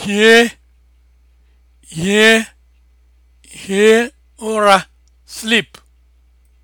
hie hie hie ụra sleep